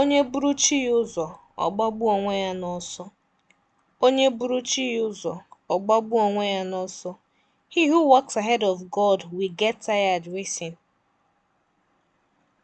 Onye buru chi ya ụzọ, ọ gbagbuo onwe ya n'ọsọ. Onye buru chi ya ụzọ, ọ gbagbuo onwe ya n'ọsọ. He who walks ahead of God will get tired racing.